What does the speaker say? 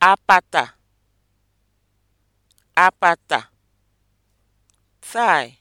apata apata tie